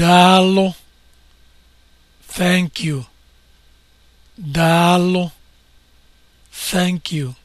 Daalụ. Thank you. Daalụ. Thank you.